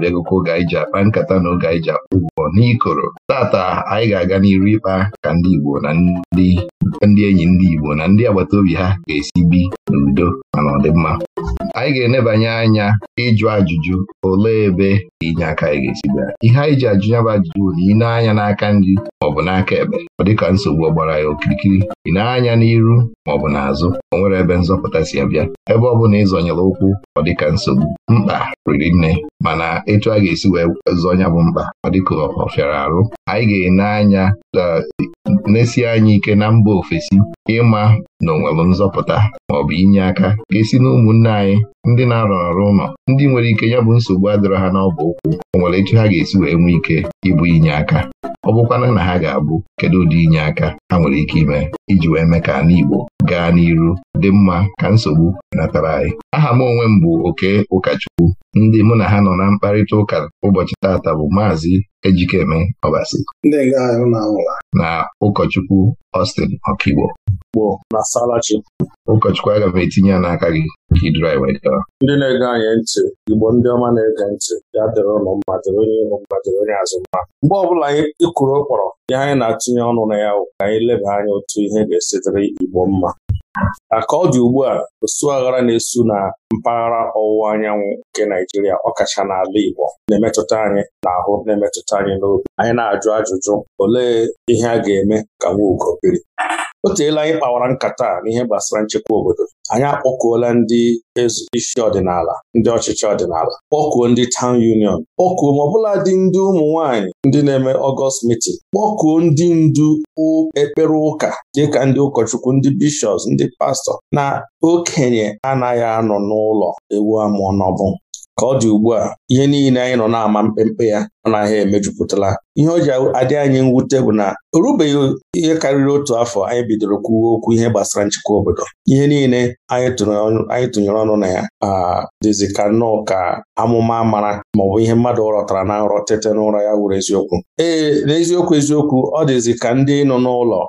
na-abịagokwa oge anyị ji akpa nkata na oge anyị ji akpa ụgwọ n'ikoro tata anyị ga-aga n'iru ịkpa ka ndị Igbo na ndị enyi ndị Igbo na ndị agbata obi ha ga-esi bi udo ma na mma. anyị ga-enebanye anya ịjụ ajụjụ olee ebe inye aka anyị ga-esi bịa ihe anyị ji ajụ ya bụ ajụjụ bụ na ị anya n'aka nri maọbụ n'aka ekpe ọ dịka nsogbu ọgbara ya okirikiri ị na-anya n'iru maọbụ n'azụ o nwere ebe nzọpụta si abịa ebe ọ bụla ịzọnyere ụkwụ ọ dịka nsogbu mkpa riri nne mana etu a ga-esi wee zọnya bụ mkpa ọ dịka ọ fịara arụ anyị ga-ene anya uh, nesi anya ike na mba ofesi ịma na onwere nzọpụta maọbụ inye aka ga-esi na ụmụnne anyị ndị na arụ ọrụ ụlọ ndị nwere ike ya bụ nsogbu adịrọ ha n'ọbụ ụkwụ onwere nwere ha ga-esi wee nwee ike ịbụ inye aka ọ bụkwana na ha ga-abụ kedu ụdị inye aka ha nwere ike ime iji wee mee ka ala Igbo gaa n'iru dị mma ka nsogbu natara anyị aha m onwe m bụ oke ụkọchukwu ndị mụ na ha nọ na mkparịta ụka ụbọchị taata bụ maazị Ejikeme Ọbasi na ụkọchukwu Austin Okigbo ụkọchukwu agaghị etinye ya n'aka gị ka iduru anyị wee ndị na-ege anyị ntị igbo ndị ọma na-ege ntị ya dịrị ụlọ mma dịrị onye ịlụ mma dịrị onye azụ mma mgbe ọbụla anyị ịkụrụ ụkpọrọ ihe anyị na-atụnye ọnụ na ya ka anyị leba anya otu ihe ga-esi igbo mma ka ọ dị ugbu a osuaghara na-esu na mpaghara ọwụwa anyanwụ nke Naijiria ọkacha n'ala Igbo na-emetụta anyị n'ahụ na-emetụta anyị n'obi anyị na-ajụ ajụjụ olee ihe a ga-eme ka ugo biri o teela anyị kpawara nkata n'ihe gbasara nchekwa obodo anyị akpọkuola ndị isi ọdịnala ndị ọchịchị ọdịnala kpọkuo ndị tawn union kpọkuo ma ọbụla dị ndị ụmụ nwaanyị ndị na-eme ọgọst mitin kpọkuo ndị ndu ekpere ụka dịka ndị ụkọchukwu ndị bishọps ndị pastọ na okenye anaghị anọ n'ụlọ ewu amụọ n'ọbụ ka ọ dị ugbu a ihe niile anyị nọ na-ama mkpemkpe ya ọ naghị emejupụtala ihe o ji adị anyị mwute bụ na o rubeghị ihe karịrị otu afọ anyị bidoro kwuwe okwu ihe gbasara nchekwa obodo ihe niile anyị tụnyere ọnụ na ya dịzi ka nnọọ ka amụma mara maọbụ ihe mmadụ rọtara na nrọ tete n'ụra ya wuru eziokwu ee n'eziokwu eziokwu ọ dịzi ka ndị nọ n'ụlọ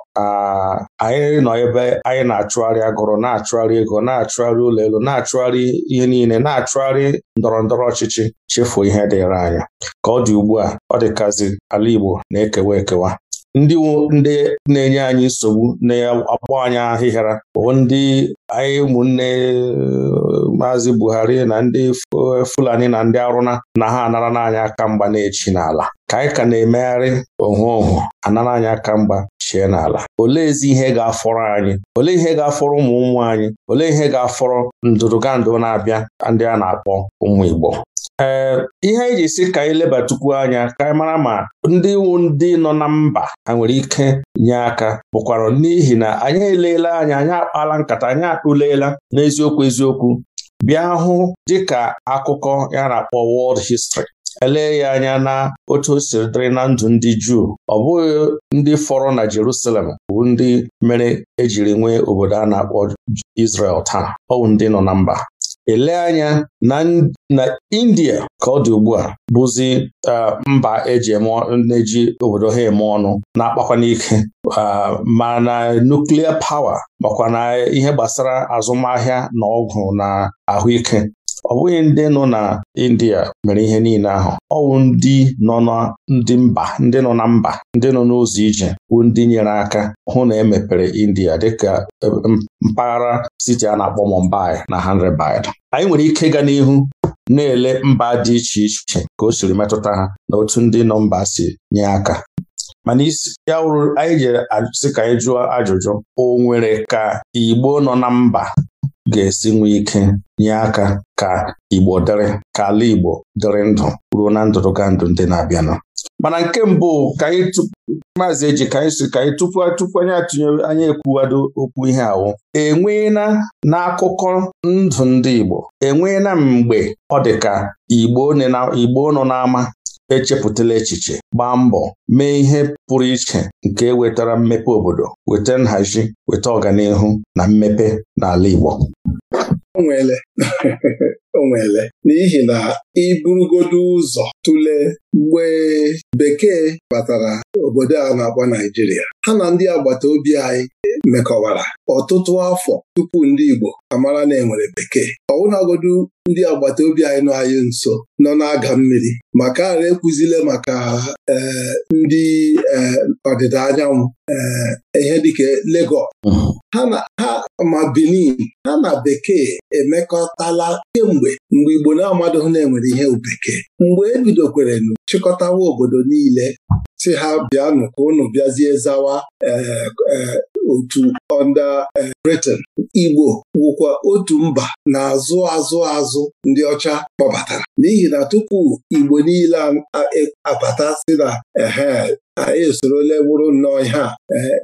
anyị nọ ebe anyị na-achụgharị agụrụ na-achụgharị ego na-achụgharị ụlọ elu na-achụgharị ihe niile na-achụgharị ndọrọ ndọrọ ọchịchị chefuo ihe dịrị anya ka ọ dị ugbu a ọ dịkazi ala Igbo na-ekewa ekewa ndị ndị na-enye anyị nsogbu na-agba anyị ahịhịara bụ ndị anyị ụmụnne maazị Buhari na ndị Fulani na ndị Arụna na ha anara n'anya aka mgba na n'ala ka anyị ka na-emegharị ohu ohu anara anyị aka mgba chie n'ala oleezi ihe ga-afọrọ anyị olee ihe ga-afọrọ ụmụ ụmụ anyị olee ihe ga-afọrọ ndụdụgandụ na-abịa ndị a na-akpọ ụmụ Igbo ee eh, ihe anyị ji si ka anyị lebatukwu anya ka anyị mara ma ndị iwu ndị nọ na mba ha nwere ike nye aka bụkwara n'ihi na anyị eleela anya anyị akpala nkata anyị akpụleela n'eziokwu eziokwu bịa hụ dịka akụkọ ya na-akpọ World History elee ya anya na otu o siri dịrị na ndụ ndị Juu ọ bụghị ndị fọrọ na Jerusalem bụ ndị mere ejiri nwee obodo a na-akpọ Israel taa ọ ndị nọ na mba elee anya na India ka ọ dị ugbu a bụzi mba eji na-eji e obodo ha eme ọnụ na-akpakwa n'ike ma na nuklia pawa makwa na ihe gbasara azụmahịa na ọgwụ na ahụike ọ bụghị ndị nọ na India mere ihe niile ahụ ọ wụ ndị nọ na ndị mba ndị nọ na mba ndị nọ n'ụzọ ije wụ ndị nyere aka hụ na emepere India dịka e, mpaghara siti a na-akpọ Mumbai na Hyderabad anyị nwere ike ịga n'ihu na-ele mba dị iche iche ka o siri metụta ha na otu ndị nọ mba si nye aka mana isi ya wụrụ anyị jere sị ka anyị jụọ ajụjụ o nwere ka Igbo nọ na mba ga-esi nwee ike nye aka ka Igbo dịrị ka ala Igbo dịrị ndụ ruo na ndụrụga ndụ ndị na-abịanụ mana nke mbụ ka anyị maazị eji ka anyị si ka anyị tupu tupu anyị atụnyere anyị ekwuwado okwu ihe ahụ. enweela n'akụkọ ndụ ndị Igbo enweela mgbe ọ dị ka Igbo nọ n'ama echepụtala echiche gbaa mbọ mee ihe pụrụ iche nke wetara mmepe obodo weta nhazi weta ọganihu na mmepe n'ala Igbo O nweele o nweele n'ihi na iburugodu ụzọ tụlee mgbe bekee batara obodo a na-akpọ Naijiria ha na ndị agbata obi anyị mekọwara ọtụtụ afọ tupu ndị Igbo amara na enwere bekee ọwụnagodu ndị agbata obi anyị nọ anyị nso nọ na-aga mmiri maka ara ekwuzile maka ndị e, ọdịda anyanwụ e, ihe dịka Lagos mm-hmm. ha ma Benin ha na bekee emekọtala kemgbe mgbe Igbo na-amadụghị na enwere ihe bekee mgbe ebidokwerenu chịkọtawa obodo niile si ha bịanụ ka unu bịazie zawa e, otu ọnda eh, briten Igbo wụkwa otu mba na-azụ azụ azụ ndị ọcha kpọbatara n'ihi na tupu Igbo niile abata si na ehe eh, anyị ole bụrụ nnọọ ihe a eh,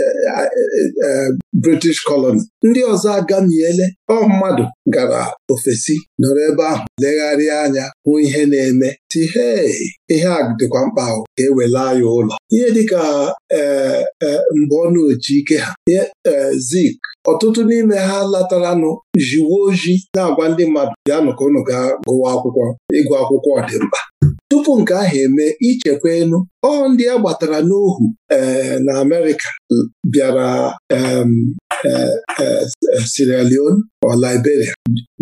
Eh, eh, eh, British colony ndị ọzọ agamiele ọ mmadụ gara ofesi nọrọ ebe ahụ legharịa anya hụ ihe na-eme si hei ihe a dịkwa mkpa ahụ ka e wela ya ụlọ ihe dịka mgbe ọ oji ike ha zik ọtụtụ n'ime ha lataranụ jiwe ojii na-agwa ndị mmadụ bịa nụka unu ga gụwa akwụkwọ ịgụ akwụkwọ ọdịmkpa tupu nke ahụ eme ichekwa enu ọ ndị a gbatara n'ohu eh, na Amerịka bịara eh, eh, Sierra Leone ọ Liberia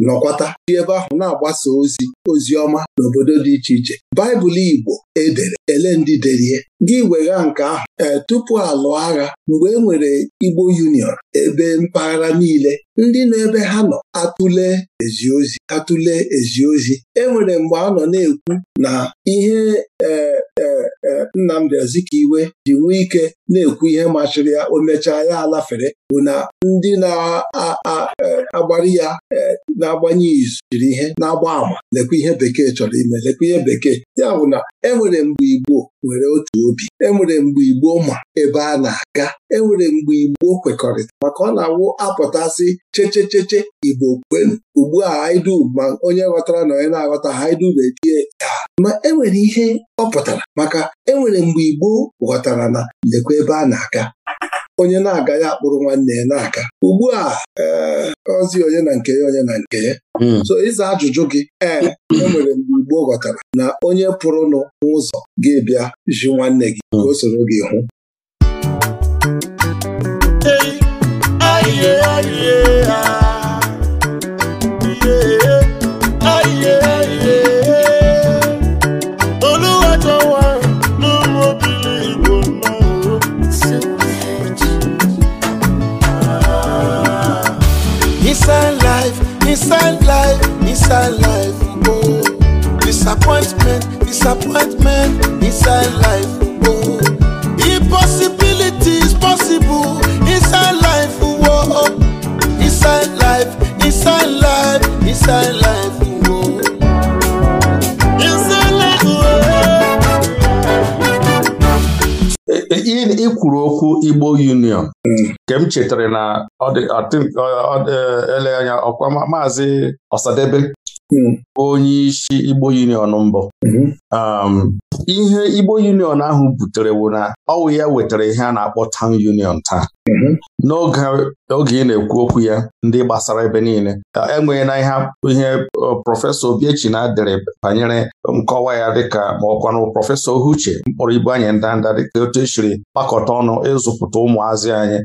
nọkwata dị ebe ahụ na-agbasa ozi ozi ọma n'obodo dị iche iche Baịbụl Igbo edere ele ndị derie gị wegha nke ahụ tupu alụọ agha mgbe e nwere Igbo Union ebe mpaghara niile ndị na-ebe ha nọ atụle ezi ozi atụle ezi ozi e mgbe a nọ na-ekwu na ihe ee Nnamdi Azikiwe ji nwee ike na-ekwu ihe machiri ya o mechaa ya alafere bụ na ndị na e, agbari ya e, na-agbanye izu jiri ihe na-agba àmà lekwa ihe bekee chọrọ ime lekwa ihe bekee ya bụ na enwere mgbe Igbo nwere otu obi enwere mgbe Igbo ma ebe a na-aga enwere mgbe Igbo kwekọrịta maka ọ na-awụ apụtasị chechecheche Igbo kwenu ugbu a haidu ma onye ghọtara na onye na-aghọta haidu bedie ya ma enwere ihe ọ pụtara maka enwere mgbe Igbo ghọtara na lekwa ebe a na-aga onye na aga ya akpụrụ nwanne ya na-aga ugbu a eh, ozi onye na nke ya onye na nke ya hmm. so ịza ajụjụ gị ee enwere mgbe Igbo ghọtara na onye pụrụnụ n'ụzọ ga bịa ji nwanne gị ka o soro gị hụ inside life oh. Disappointment, disappointment inside life oh. Impossibilities possible inside life oh. Inside life, inside life, inside life ikwuru okwu Igbo Union nke m chetara na e, ele anya ọkwa maazị Osadebe. Hmm. onye isi Igbo Union mbụ hmm. um, ihe Igbo Union ahụ butere bụ na ọwụ ya wetara ihe a na-akpọ Town Union taa mhm. n'oge ị na-ekwu okwu ya ndị gbasara ebe niile enweghị na ihe prọfesọ Obiechi na dere banyere nkọwa ya dịka ma ọkwanụ prọfesọ Ohuche mkpọrọ ibu anyị ndanda dịka otu esiri kpakọta ọnụ ịzụpụta ụmụazị anyị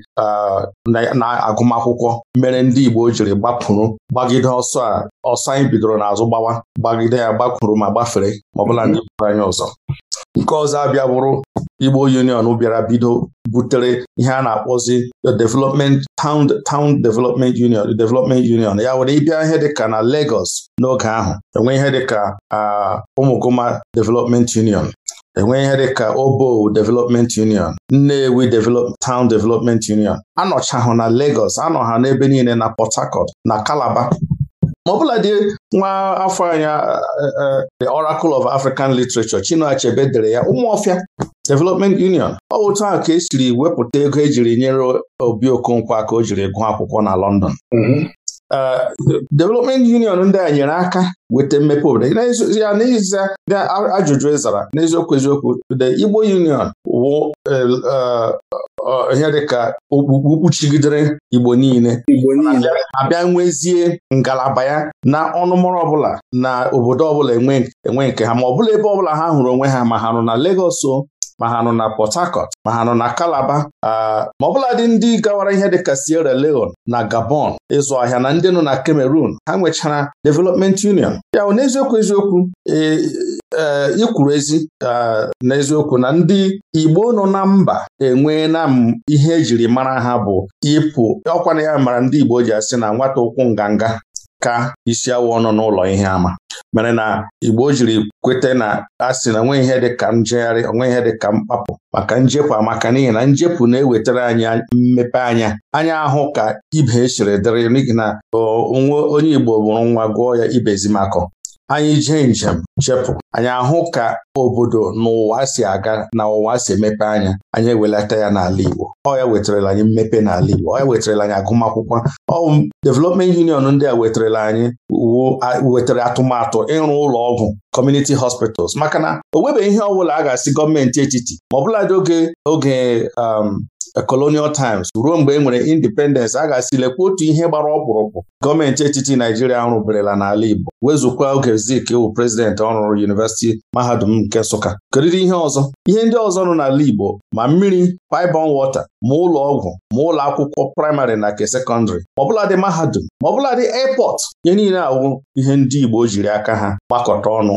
na agụmakwụkwọ mere ndị Igbo jiri gbapụrụ gbagide ọsọ a ọsọ anyị bidoro n'azụ gbawa gbagide ya gbakwuru ma gbafere ma ọbụla ndị bụrụ anyị ọzọ nke ọzọ abịa Igbo Union bịara bido butere ihe a na-akpọzi development town town development union development union ya were ịbịa ihe dịka na Lagos n'oge ahụ enwe ihe dịka Umugoma development union enwe ihe dịka Obo development union Nnewi town development union anọchahụ na Lagos anọ ha n'ebe niile na Port Harcourt na Calabar ma bụla dị nwa afọ anya the Oracle of African Literature Chinua Achebe dere ya Ụmụọfịa Development Union ọ otu ahụ ka esiri wepụta ego ejiri nyere Obi Okonkwo aka o jiri gụọ akwụkwọ na London mm-hmm. Development Union ndị a nyere aka weta mmepe obodo ya n'ezie ndị ajụjụ ịzara e n'eziokwu eziokwu the Igbo Union wụ e, ihe dịka okpukpu kpuchigidere Igbo niile abịa nwezie ngalaba ya na ọnụmụrụ ọbụla na obodo ọbụla enwe nke ha ma ọ bụla ebe ọbụla ha hụrụ onwe ha ma ha nọ na Lagos ma ha nọ na Port Harcourt ma ha nọ na Calabar ma dị ndị gawara ihe dịka Sierra Leone na Gabon ịzụ ahịa na ndị nọ na Cameroon ha nwechara Development Union ya n'eziokwu eziokwu e, ee eh, ikwuru ezi n'eziokwu na ndị Igbo nọ na mba enweela na m ihe ejiri mara ha bụ ịpụ ọkwana ya mara ndị Igbo ji asị na nwata ụkwụ nganga ka isi awụ nọ n'ụlọ ihe ama mere na Igbo jiri kweta na asị na onwe ihe dị ka njegharị onwe ihe dị ka mkpapụ maka njepụ amaka n'ihi na njepụ na-ewetara anyị mmepe anya anya ahụ ka ibe esiri dịrị n'ihi na onwe onye Igbo bụrụ nwa gụọ ya ibezimakọ anyị jee njem chepụ anyị ahụ ka obodo n'ụwa ụwa si aga na ụwa si emepe anya anyị ewelata ya n'ala Igbo ọ ya wetarala anyị mmepe n'ala Igbo ọ ya wetarala anyị agụmakwụkwọ ọ development union ndị a wetarala anyị wetara atụmatụ ịrụ ụlọ ọgwụ community hospitals maka na o nwebeghị ihe ọ bụla a ga-asị gọọmenti etiti ma ọbụladị oge oge um, colonial times ruo mgbe e nwere independence a ga-asị lekwa otu ihe gbara ọkpụrụkpụ gọọmenti etiti Naijiria rụberela n'ala Igbo wezụkwa oge Zik wụ prezidenti ọrụ yunivesiti mahadum nke Nsụka keriri ihe ọzọ ihe ndị ọzọ nọ n'ala Igbo ma mmiri paịbọn wọta ma ụlọ ọgwụ ma ụlọ akwụkwọ praịmarị na nke sekọndịrị ma dị mahadum ma dị airport ihe niile awụ ihe ndị Igbo jiri aka ha gbakọta ọnụ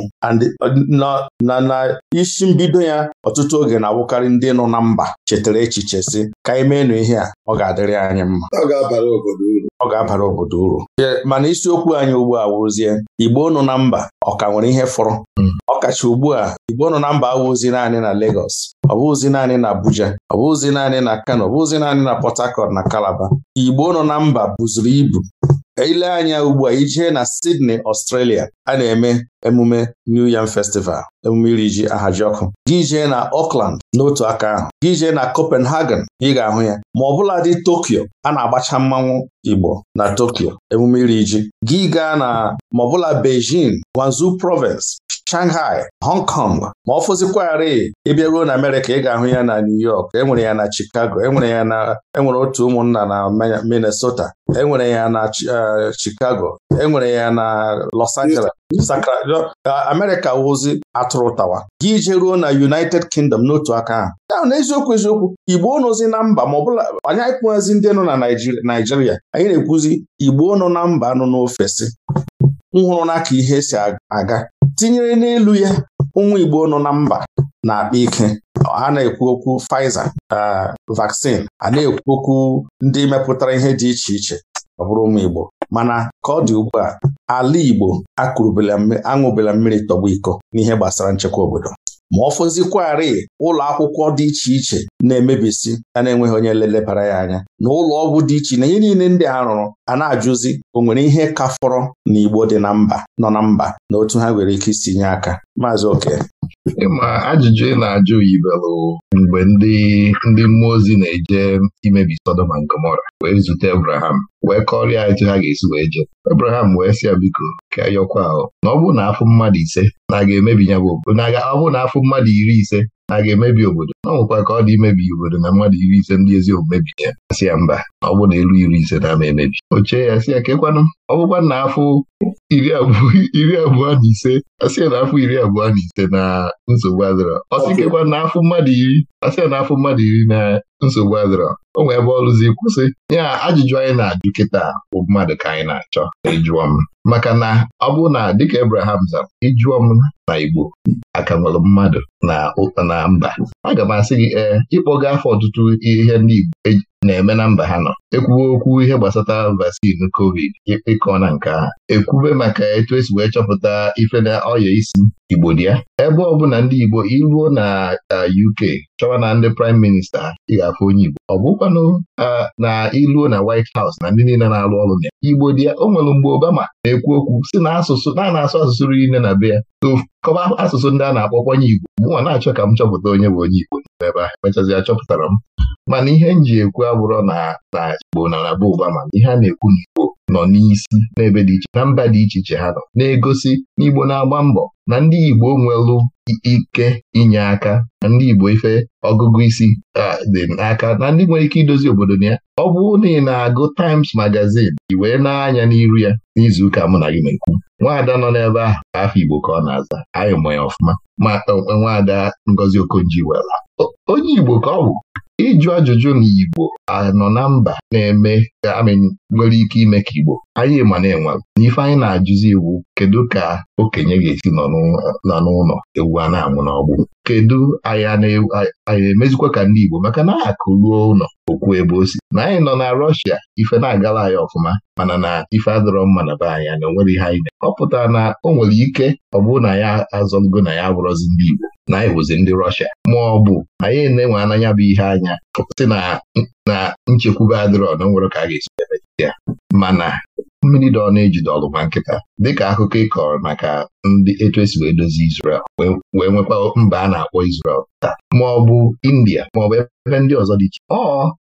na isi mbido ya ọtụtụ oge na-awụkarị ndị nọ na mba chetara echiche si ka anyị meenụ ihe a ọ ga-adịrị anyị mma ọ ga-abara obodo uru mana isiokwu anyị ugbu a wụrụzie Igbo nọ na mba ọ ka nwere ihe fọrọ hmm. ọkacha ugbu a Igbo nọ na mba awụzi naanị na Lagos ọ bụghịzi naanị na Abuja ọ bụghịzi naanị na Kano ọ naanị na Port Harcourt na Calabar Igbo nọ na mba buzuru ibu ile anya ugbu a ijee na Sydney Australia a na-eme emume New Yam Festival emume iri ji aha ọkụ gị jee na Auckland n'otu aka ahụ gị jee na Copenhagen ị ga-ahụ ya ma ọ bụla dị Tokyo a na-agbacha mmanwụ Igbo na Tokyo emume iri ji gị gaa na ma ọ bụla Beijing Province Shanghai Hong Kong ma ọ fụzikwarị ịbịa ruo na Amerika, ị ga-ahụ ya na New York enwere ya na Chicago enwere ya na enwere otu ụmụnna na Minnesota enwere ya na e, Chicago enwere ya na Los Angeles ga Amerịka wụzi atụrụ tawa gị ije ruo na United Kingdom n'otu aka ahụ ahụ n'eziokwu eziokwu Igbo nọzi na mba ma ọbụla anyị ekwughịzi ndị nọ na Naijiria anyị na-ekwuzi Igbo nọ na mba nọ n'ofesi nhụrụ naka ka ihe si aga tinyere n'elu ya ụmụ Igbo nọ na mba na-akpa ike a na-ekwu okwu Pfizer ah, vaccine a na-ekwu okwu ndị mepụtara ihe dị iche iche ọ bụrụ ụmụ Igbo mana ka ọ dị ugbu a ala Igbo aṅụbela mmiri tọgbọ iko n'ihe gbasara nchekwa obodo ma ọ fụzikwarị ụlọ akwụkwọ dị iche iche na-emebisi ya na-enweghị onye lelebara ya anya na ụlọ ọgwụ dị iche na ihe niile ndị a rụrụ a na-ajụzi o nwere ihe ka fọrọ na Igbo dị na mba nọ na mba na otu ha nwere ike isi nye aka maazị oke ịma ajụjụ ị na-ajụ yibelụ mgbe ndị ndị mmụọ ozi na-eje imebi Sodom na Gomora wee zute Abraham wee kọrịa etu ha ga-esi wee je Abraham wee sị ya biko ka yọkwa ahụ na ọ bụ na afụ mmadụ ise na-aga emebi ya bụ ọ bụ na afụ mmadụ iri ise a ga-emebi obodo ọ nwekwa ka ọ dị imebi obodo na mmadụ iri ise ndị ezi omume bi ya asị ya mba ọ bụ na elu iri ise na-ama emebi Oche ya sị ya kekwanụ ọ bụkwa na afọ iri abụọ na ise asị ya na afọ iri abụọ na ise na nsogbu adịrọ ọ sị kekwa na afọ mmadụ iri asị ya na afọ mmadụ iri na nsogbu adịrọ o nwee ebe ọrụzi kwụsị ya ajụjụ anyị na-ajụ kịta bụ mmadụ ka anyị na-achọ ịjụọ m maka na ọ bụ na dịka ebraham zara ịjụọ m na Igbo aka nwere mmadụ na na mba aga m asị gị ee eh, ịkpọga afọ ọtụtụ ihe ndị Igbo e na-eme na mba ha nọ ekwuwe okwu ihe gbasata vaccin covid ịkọ na nke ekwube maka etu esi wee chọpụta ife na ọya isi Igbo dị ya ebe ọ bụla ndị Igbo iruo na UK chọwa na ndị praịm Minista ị ga-afụ onye Igbo ọ bụkwanụ na iluo na White House na ndị niile na-arụ ọrụ na ya Igbo dị ya o nwere mgbe Obama na-ekwu okwu si na asụsụ na na-asụ asụsụ niile na be ya kọba asụsụ ndị a na-akpọkwa onye Igbo mụnwa na-achọ ka m chọpụta onye bụ onye Igbo n'ebe ahụ mechazịa chọpụtara m mana ihe m ji ekwu abụrọ na na Igbo na na ụba mana ihe a na-ekwu igbo nọ n'isi n'ebe dị iche na mba dị iche iche ha nọ na-egosi na Igbo na-agba mbọ na ndị Igbo nwelụ ike inye aka na ndị Igbo ife ọgụgụ isi dị n'aka na ndị nwere ike idozi obodo na ya ọ bụrụ na ị na-agụ Times Magazine ị wee na-anya n'iru ya n'izuụka mụ na gị na-ekwu nwaada nọ n'ebe ahụ afọ Igbo ka ọ na-aza anyị mụ ya ọfụma ma nwaada Ngozi okonji wela onye Igbo ka ọ bụ Ịjụ ajụjụ na Igbo anọ na mba na-eme amị nwere ike ime ka Igbo anyị ma na enwe n'ife anyị na-ajụzi iwu kedu ka okenye ga-esi nọ n'ụlọ ewu a na amụ n'ọgbụ kedu anyị emezikwa ka ndị Igbo maka na akụ ruo ụlọ okwu ebe o si na anyị nọ na Rọshia ife na-agala anyị ọfụma mana na ife adọrọ mma na be anyị na onwere ihe anyị na ọ pụtara na o nwere ike ọ bụrụ na ya azọlugo na ya bụrọzi ndị Igbo na anyị bụzi ndị Rọshia ma ọ bụ anyị na-enwe ananya bụ ihe anya sị na nchekwube adịrọ na nwere ka a ga-esi emechite ya mana mmiri ọ na-ejide ọlụ nkịta dịka akụkọ ị kọrọ maka ndị etu esi wee dozie Israel wee nwekwa mba a na-akpọ Israel taa ma ọ bụ India ma ọ bụ ebe ndị ọzọ dị iche ọ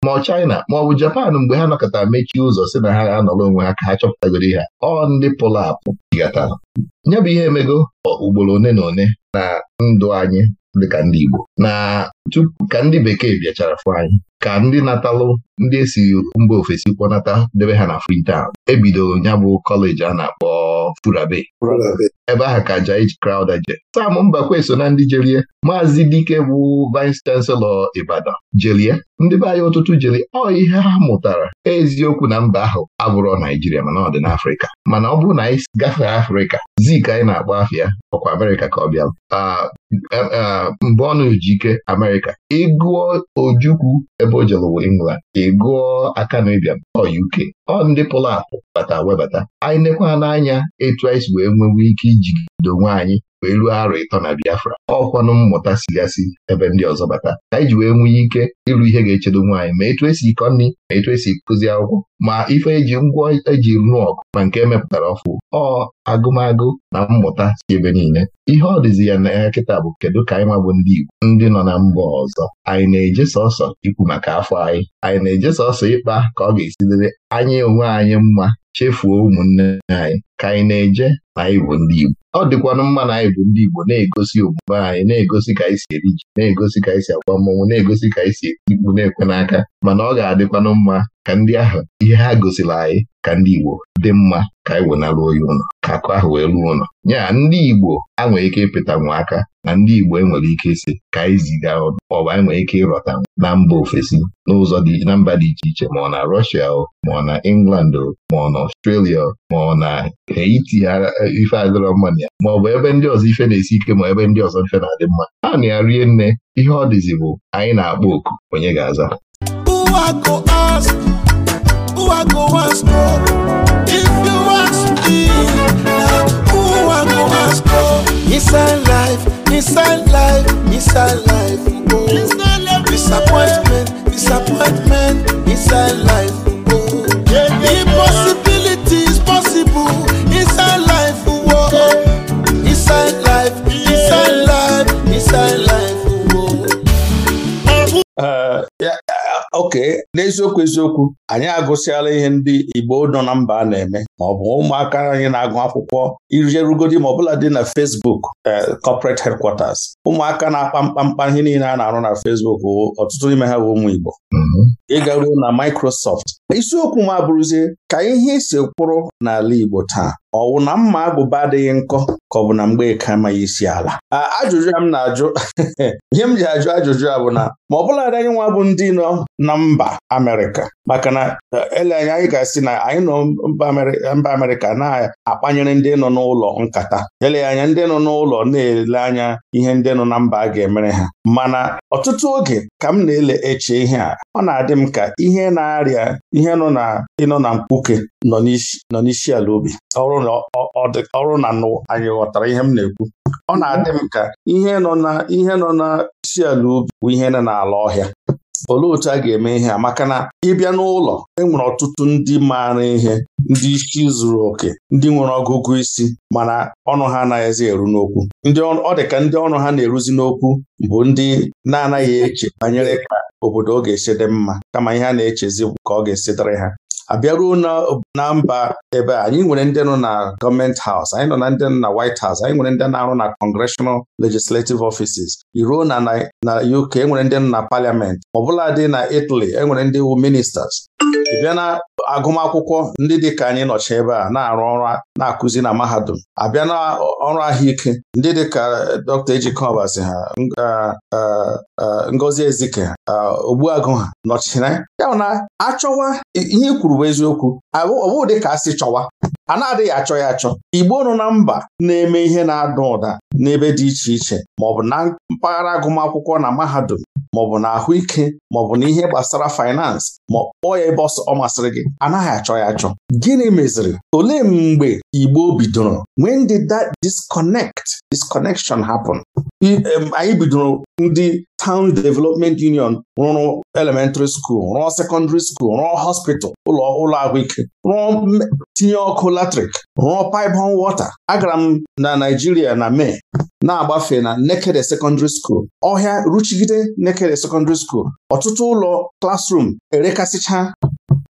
ma ọ China ma ọ bụ Japan mgbe ha nọkọtara mechie ụzọ si na ha anọrọ onwe ha ka ha chọpụtagoro ha ọ ndị pụlụ apụ digata nye bụ ihe emego ugboro one na one na ndụ anyị dịka ndị Igbo na tupu ka ndị bekee bịachara fụ anyị ka ndị natalụ ndị esi mba ofesi kpọnata debe ha na Freetown ebidoro ya bụ kọleji a na-akpọ ọ furabe ebe ahụ ka Jai Crowther je Sam Mbakwe so na ndị jelie Maazị Dike bụ Vice Chancellor Ibadan jelie ndị be anyị ụtụtụ jeli ọ ihe ha mụtara eziokwu na mba ahụ abụrọ Naijiria mana ọ dị n'Afrịka mana ọ bụrụ na anyị gafee Afrịka zik anyị na-akpọ afịa ọkwa Amerịka ka ọ bịa mgbe na-eji ike Amerịka ịgụọ Ojukwu ebe o jelewo England ịgụọ Akanu Ibiam ọ UK ọ ndị pụrụ apụ bata webata anyị nekwa n'anya etu anyị si wee nwewe ike ijigide onwe anyị wee ruo arọ ịtọ na Biafra ọkwanụ mmụta sigasị ebe ndị ọzọ bata ka anyị ji wee nwee ike ịrụ ihe ga-echedo nwaanyị ma etu esi ịkọ nri ma etu esi kụzi akwụkwọ ma ife eji ngwa eji rụọ ọkụ ma nke emepụtara ọfụ ọ agụmagụ na mmụta si ebe niile ihe ọ dịzi ya na ya kịta bụ kedu ka anyị nwa bụ ndị Igbo ndị nọ na mba ọzọ anyị na-eje sọsọ ikwu maka afọ anyị anyị na-eje sọsọ ịkpa ka ọ ga-esi anya onwe anyị mma chefuo ụmụnne anyị ka anyị na-eje na anyị bụ ndị Igbo ọ dịkwanụ mma na anyị bụ ndị Igbo na-egosi omume anyị na-egosi ka anyị si eri ji na-egosi ka anyị si agwa mmọnwụ na-egosi ka anyị si eri na-ekwe n'aka mana ọ ga-adịkwanụ mma ka ndị ahụ ihe ha gosiri anyị ka ndị Igbo dị mma ka anyị wenara oyi ụlọ ka akụ ahụ wee ruo ụlọ nya ndị Igbo a ike ịpụta nwa aka na ndị Igbo enwere ike isi ka anyị ziga ọnụ maọbụ anyị nwere ike ịrọta na mba ofesi n'ụzọ dị na mba dị iche iche ma ọ na Russia ma ọ na England ma ọ na Australia ma ọ na Haiti ife adịrọ mma na ya maọbụ ebe ndị ọzọ ife na-esi ike ma ebe ndị ọzọ ife na-adị mma Ha na ya rie nne ihe ọ dịzi bụ anyị na-akpọ oku onye ga-aza I go ask? Who I go ask for If you want to ask me, na who I go ask for Inside life, inside life, inside life, oh. disappointment, disappointment, inside life, oh. Yeah, yeah, Impossibility is possible inside life, oh. Inside life, inside life, inside life, oh. oke n'eziokwu eziokwu anyị agụsịala ihe ndị Igbo nọ na mba a na-eme ma ọ bụ ụmụaka anyị na-agụ akwụkwọ ijerugodi ma ọbụla dị na Facebook eh, corporate headquarters ụmụaka na-akpa mkpamkpa ihe niile a na-arụ na Fesbuk ọtụtụ n'ime ha bụ ụmụ Igbo mm-hmm. ịga ruo na Microsoft isiokwu m abụrụzie ka ihe isi kwụrụ n'ala Igbo taa ọwụ na mma agụba adịghị nkọ ka ọ bụ na Mgbeka amaghị isi ala ajụjụ m na-ajụ ihe m ji ajụ ajụjụ a bụ na ma ọ bụla anyị nwa bụ ndị nọ na mba Amerịka maka na e, ele anya anyị ga-asị na anyị nọ mba Amerịka na-akpanyere ndị nọ n'ụlọ nkata ele anya ndị nọ n'ụlọ na-ele anya ihe ndị nọ na mba a ga-emere ha mana ọtụtụ oge ka m na-ele eche ihe a ọ na-adị m ka ihe na-arịa ihe nọ na ịnọ na mkpuke nọ n'isi ala ubi ọrụ na anyị ghọtara ihe m na-ekwu ọ na-adị m ka ihe nọ n'isi ala ubi bụ ihe nọ n'ala ọhịa olee otu a ga-eme ihe a maka na ịbịa n'ụlọ enwere ọtụtụ ndị maara ihe ndị isi zuru oke ndị nwere ọgụgụ isi mana ọnụ ha anaghịzi eru n'okwu ndị ọ dị ka ndị ọnụ ha na-eruzi n'okwu bụ ndị na-anaghị eche banyere ka obodo ọ ga-esi dị mma kama ihe a na-echezi ka ọ ga-esi dịrị ha abịaruo na mba ebe anyị nwere ndị nọ na gọọmenti haus anyị nọ na ndị nọ na White House anyị nwere ndị na-arụ na Congressional Legislative Offices iruo na na UK enwere ndị nọ na Parliament ọbụla dị na Italy enwere ndị wu ministers ị bịa na agụmakwụkwọ ndị dị ka anyị nọchi ebe a na-arụ ọrụ na-akụzi na mahadum abịa na ọrụ ahụike ndị dị ka eh, Dr. Ejike ha eh, eh, Ngozi Ezike ha Ogbuagụ ha nọchiri ya na achọwa ihe e kwuru bụ eziokwu ọ dị ka a sị chọwa a na-adịghị achọ ya achọ igbo nọ na mba na-eme ihe na-ada ụda n'ebe dị iche iche ma ọ bụ na mpaghara agụmakwụkwọ na mahadum maọbụ na ahụike maọbụ na ihe gbasara faịnansị ma kpọọ ya ebe ọ masịrị gị anaghị achọ ya achọ gịnị meziri olee mgbe Igbo bidoro when did that disconnect disconnection happen anyị bidoro ndị Town Development Union rụrụ elementary school rụọ secondary school rụọ hospital ụlọ ụlọ ahụike rụọ tinye ọkụ latrik rụọ pipe on water agara m na Naijiria na Mee na-agbafe na Nekede secondary school ọhịa ruchigide Nekede secondary school ọtụtụ ụlọ klasrum erekasịcha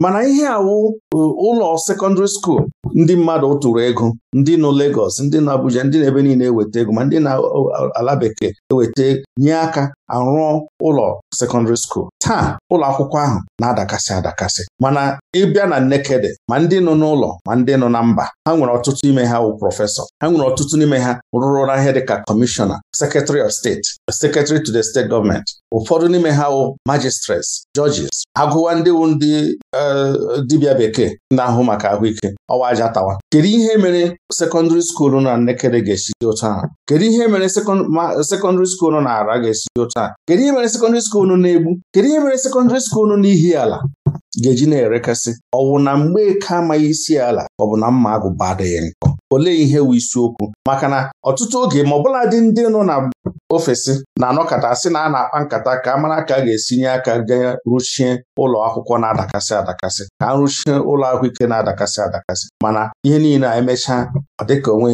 mana ihe awụ e, ụlọ sekọndịrị skuul ndị mmadụ tụrụ ego ndị nọ Lagos ndị nọ Abuja ndị na-ebe niile eweta ego ma ndị na-ala bekee eweta nye aka arụọ ụlọ sekọndịrị skuul taa ụlọ akwụkwọ ahụ na-adakasị adakasị mana ịbịa na Nnekede ma ndị nọ n'ụlọ ma ndị nọ na mba ha nwere ọtụtụ ime ha wụ prọfesọ ha nwere ọtụtụ n'ime ha rụrụ ahịa dịka kọmishọna sekretari of steeti sekretari to the state gọọmenti ụfọdụ n'ime ha wụ magistrates judges agụwa ndị wu ndị e, dibịa bekee na-ahụ maka ahụike ọwa aja tawa kedu ihe mere sekọndịrị skuulu na Nnekere ga-esi dị otu kedu ihe mere sekọndịrị skuulu na Ara ga-esi dị otu kedu ihe mere sekọndịrị skuulu na Egbu kedu ihe mere sekọndịrị na ala. ga-eji na-erekasị ọ wụ na eke amaghị isi ala ọ bụ na mma agụba adịghị nkọ olee ihe wụ isiokwu maka na ọtụtụ oge ma ọbụla dị ndị nọ na ofesi na-anọkọta sị na a na-akpa nkata ka a mara ka a ga nye aka gaa rụchie ụlọ akwụkwọ na-adakasị adakasị ka a rụchie ụlọ ahụike na-adakasị adakasị mana ihe niile a emechaa ọ dịka onwe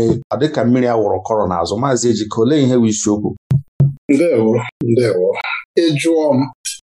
mmiri a wụrụ kọrọ n'azụ maazị Ejike olee ihe wụ isiokwu ndewo ndewo ị m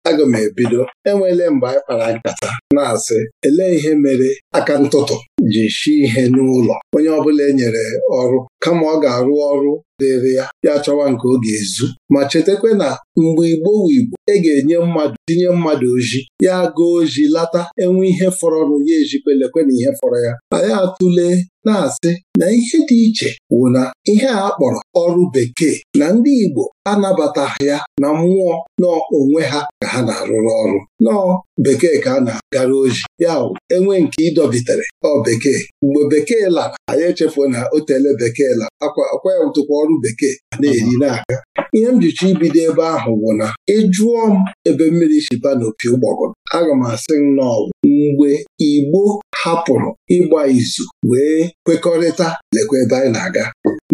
aga m ebido enweele mgbe anyị kpara nkata na-asị elee ihe mere aka ntụtụ ji shi ihe n'ụlọ onye ọbụla e nyere ọrụ kama ọ ga-arụ ọrụ dịrị ya ya chọwa nke ọ ga-ezu ma chetakwa na mgbe igbo igbo e ga-enye mmadụ tinye mmadụ oji ya gaa oji lata enwe ihe fọrọ ya ejikwelekwe na ihe fọrọ ya anyị atụle na-asị na ihe dị iche wụ na ihe a kpọrọ ọrụ bekee na ndị Igbo anabataghị ya na mmụọ n'onwe ha ka ha na-arụrụ ọrụ nọọ bekee ka a na-agara oji ya wụ enwe nke ịdọbitere ọ bekee mgbe bekee lara anyị echefuo na o tele bekee lara akwa ya ụtụkwa ọrụ bekee na-eri n'aka ihe m jicha ibido ebe ahụ bụ na ịjụọ m ebe mmiri shiba n'opi ụgbọgọrọ aga m asị na mgbe Igbo hapụrụ ịgba izu wee kwekọrịta lekwa ebe anyị na-aga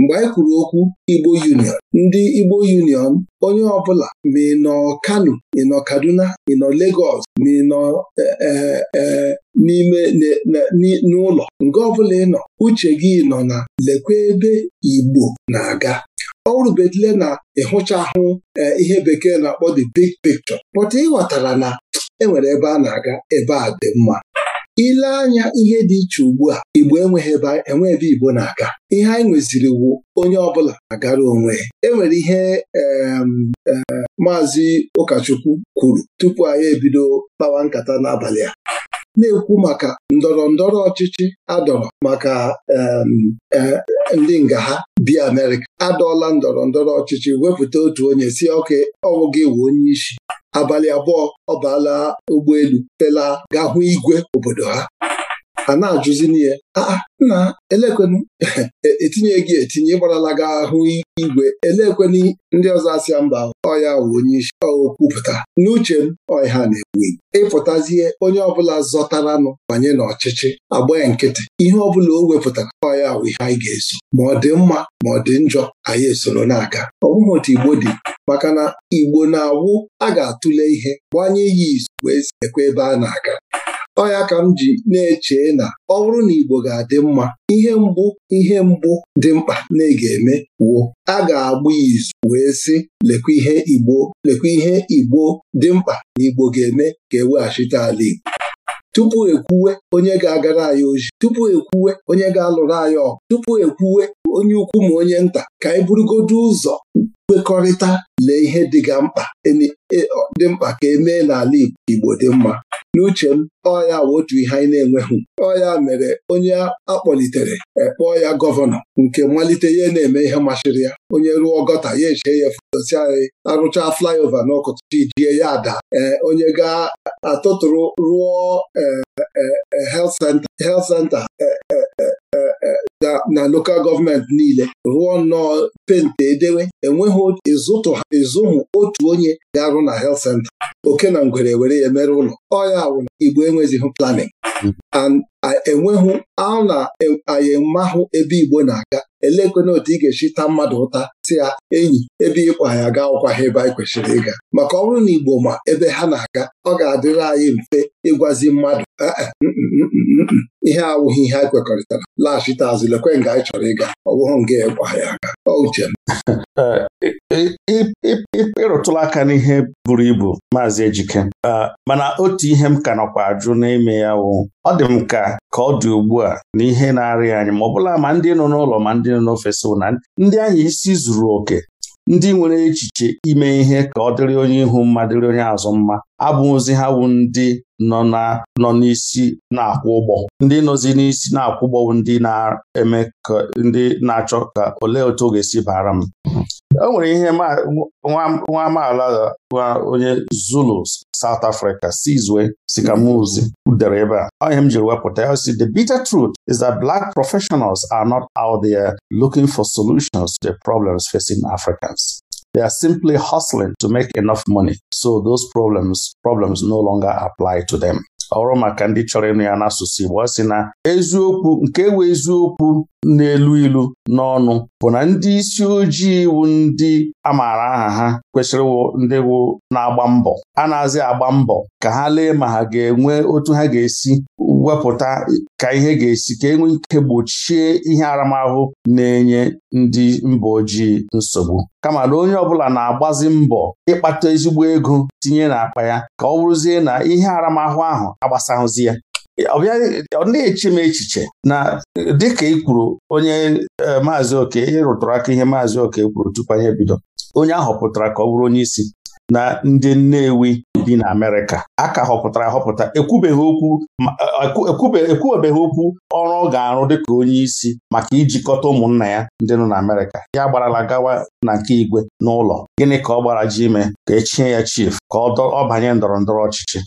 mgbe anyị kwuru okwu Igbo Union ndị Igbo Union onye ọbụla ma ị nọ Kano ị nọ Kaduna ị nọ Lagos ma ị nọ e, e, e, n'ime n'ụlọ nke ọbụla ị nọ uche gị nọ na lekwa ebe Igbo na-aga ọ rubedile na ịhụcha ahụ ihe bekee na-akpọ the big picture ị ịghọtara na enwere ebe a na-aga ebe a dị mma ile anya ihe dị iche ugbu a igbo enweghị ebe ebe igbo na-aga ihe anyị nweziri wu onye ọbụla agara onwe enwere ihe maazị ụkọchukwu kwuru tupu anyị ebido kpawa nkata n'abalị a na-ekwu maka ndọrọ ndọrọ ọchịchị adọrọ maka e, ndị nga ha bi Amerịka adọọla ndọrọ ndọrọ ọchịchị wepụta otu onye si ọka ọwụghị ewu onye isi abalị abụọ ọ baala ụgbọelu pela gahụ igwe obodo ha ha na-ajụzili ya ah, ah, nna elekwenu e, etinye gị etinye ịgbarala gị ahụ igwe elekwenu ndị ọzọ asịa mba ọya wụ onye isi okwupụta n'uche m ọya na ekwu ịpụtazie onye ọbụla zọtaranụ banye n'ọchịchị agbanye nkịtị ihe ọbụla o wepụtara ọya wụ ihe anyị ga-eso ma ọ dị mma ma ọ dị njọ anyị esoro na-aga ọ bụghị otu Igbo dị maka na Igbo na-awụ a ga-atụle ihe gbanye iyi izu wee ekwe ebe a na-aga ọ ka m ji na-eche na ọ bụrụ na Igbo ga-adị mma ihe mbụ ihe mbụ dị mkpa na ga-eme wuo a ga-agba izu wee sị lekwa ihe Igbo lekwa ihe Igbo dị mkpa na Igbo ga-eme ka eweghachite ala Igbo tupu ekwuwe onye ga-agara anyị oji tupu ekwuwe onye ga-alụrụ anyị ọgụ tupu ekwuwe onye ukwu ma onye nta ka anyị burugodo ụzọ kwekọrịta lee ihe dịga mkpa e e, dị mkpa ka emee n'ala Igbo dị mma n'uche m ọ ya wụ otu ihe anyị na-enweghị ọ ya mere onye akpọlitere ekpọọ ya gọvanọ nke mmalite ihe na-eme ihe masịrị ya onye ruo gọta ya eche ya fotosi anyị arụchaa flyover n'ọkụtụ ijie ya ada ee onye ga-atụtụrụ rụọ e, e, e, health center na local gọọmenti niile rụọ nnọọ pente edewe enweghị ịzụtụ ịzụhụ otu onye ga-arụ na helt senta oke na ngwere were ya mere ụlọ ọya wụna igbo enwezighị planin mm-hmm. and Enweghị a na-anyị e, mahụ ebe Igbo na-aga elekwana otu ị ga-esi taa mmadụ ụta si ya enyi ebe ịkwa ya ga ọkwaghị ebe anyị kwesịrị ịga maka ọ na Igbo ma ebe ha na-aga ọ ga-adịrị anyị mfe ịgwazi mmadụ eh, eh, mm, mm, mm, ihe awụghị ihe anyị kwekọrịtara laghachite azụ lekwe nga anyị chọrọ ịga ọ bụghị nga ịkwa e ya aga uche eh, ịrụtụla aka n'ihe buru ibu maazị Ejike ah, mana otu ihe m ka nọkwa ajụ n'ime ya wụ ọ dị m ka ka ọ dị ugbu a na ihe na-arị anyị ma ọ bụla ma ndị nọ n'ụlọ ma ndị nọ n'ofesi na ndị anyị isi zuru oke ndị nwere echiche ime ihe ka ọ dịrị onye ihu mma dịrị onye azụ mma abụghịzi ha bụ ndị nọ n'isi na-akwụ ụgbọ ndị nọzi n'isi na-akwụ ụgbọ ndị na-eme ka ndị na-achọ ka olee otu ọ ga-esi bara m o nwere ihe nwa amaala onye Zulu South Africa Sizwe Sikamuzi dere ebe a onye m jiri wepụta ya si the bitter truth is that black professionals are not out there looking for solutions to the problems facing Africans. They are simply hustling to make enough money so those problems problems no longer apply to them. ọrụ maka ndị chọrọ ịnụ ya n'asụsụ Igbo ọ sị na eziokwu nke ewe eziokwu n'elu ilu n'ọnụ bụ na ndị isi ojii wu ndị amaara aha ha kwesịrị ndị wụ na-agba mbọ a na-azị agba mbọ ka ha lee ma ha ga-enwe otu ha ga-esi wepụta ka ihe ga-esi ka enwe ike gbochie ihe aramahụ na-enye ndị mba ojii nsogbu kama na onye ọbụla na-agbazi mbọ ịkpata ezigbo ego tinye n'akpa ya ka ọ bụrụzie na ihe aramahụ ahụ agbasahụzi ya ọ na-eche m echiche na dịka ị kwuru onye e, maazị oke ịrụtụrụ aka ihe maazị oke kwuru tupu anyị bido onye ahụ pụtara ka ọ bụrụ onye isi na ndị Nnewi bi na Amerịka a ka họpụtara ahọpụta ekwubeghị okwu e, e, okwu ọrụ ọ ga-arụ dịka onye isi maka ijikọta ụmụnna ya ndị nọ na Amerịka ya gbarala gawa na nke igwe n'ụlọ gịnị ka ọ gbara ji ime ka echie ya chief ka ọ banye ndọrọndọrọ ọchịchị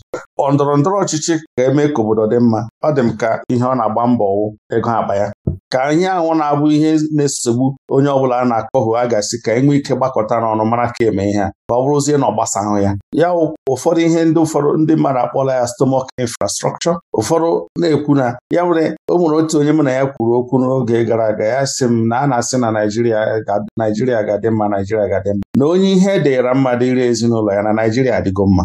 Ndọrọndọrọ ọchịchị ka eme ka obodo dị mma ọ dị m ka ihe ọ na-agba mbọ wụ ego akpa ya ka anyị anwụ na-abụ ihe na-esogbu onye ọ bụla a na-akọhụ a ga-asị ka enwe ike gbakọta n'ọnụ mara ka eme ihe a ka ọ bụrụzie na ọ gbasahụ ya ya ụfọdụ ihe ndị ụfọdụ ndị mmadụ akpọla ya stomach infrastructure ụfọdụ na-ekwu na ya nwere o nwere otu onye mụ na ya kwuru okwu n'oge gara aga ya sị m na a na-asị na Naijiria Naijiria ga-adị mma Naijiria ga-adị mma na onye ihe deere mma dịrị ezinụlọ ya na Naijiria adịgo mma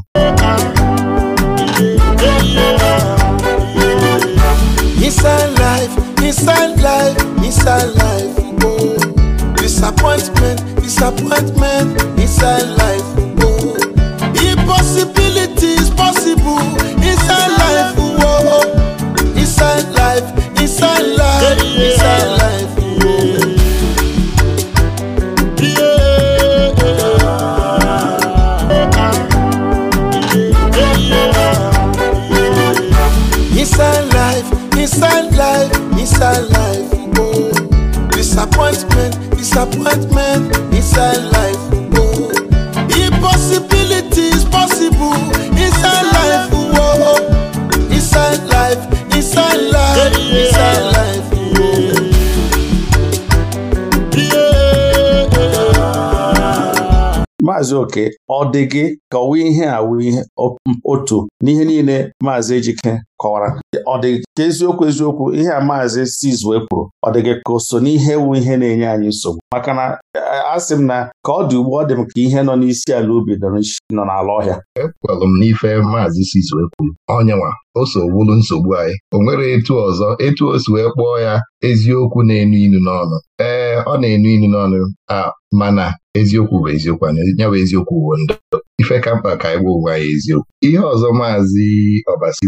Otu n'ihe niile Maazị Ejike kọwara ọ dị ka eziokwu eziokwu ihe a maazị Sizwe kwuru ọ gị ka o so n'ihe wu ihe na-enye anyị nsogbu maka na eh, asị m na ka ọ dị ugbu ọ dị m ka ihe nọ n'isi ala ubi nọ n'ala ọhịa ekwelụ m n'ife maazị Sizwe kwuru onyenwa o so nsogbu anyị o nwere etu ọzọ etu o si wee kpọọ ya eziokwu na-enu inu n'ọnụ ee eh, ọ na-enu inu n'ọnụ a mana eziokwu bụ eziokwu ya bụ eziokwu bụ ndụ ife ka mkpa ka anyị gwa onwe anyị eziokwu ihe ọzọ maazị Ọbasi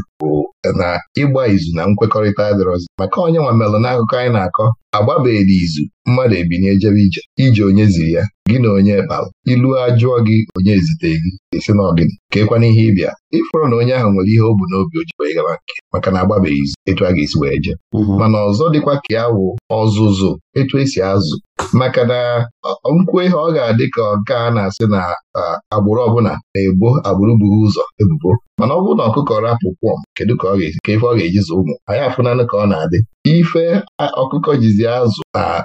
na ịgba izu na nkwekọrịta adịrọzi maka onye nwa melụ n'akụkọ anyị na-akọ agbabeghị izu mmadụ ebinye jebe ije ije onye ziri ya gị na onye kpara ilu ajụọ gị onye ezite gị esi na ka ekwana ihe ịbịa ịfụrụ na onye ahụ nwere ihe o bu n'obi ojikwa ịgaba nke maka na agbabeghị izu etu a ga-esi wee jee mhm. mana ọzọ dịkwa ka ya wụ ọzụzụ etu esi azụ maka na nkwu ihe ọ ga-adị ka nke a na-asị na agbụrụ ọbụla na-ebo agbụrụ buru ụzọ ebubo mana ọ bụrụ na ọkụkọ rapụ kwọm kedu ka ọ ga-esi ka ife ọ ga-eji ụmụ anyị afụnanụ ka ọ na-adị ife ọkụkọ jizi ya azụ